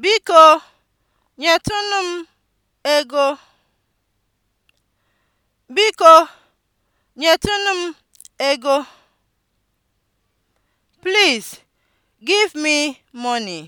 Biko, nyetụnụ m ego. Biko, nyetụnụ m ego. Please give me money.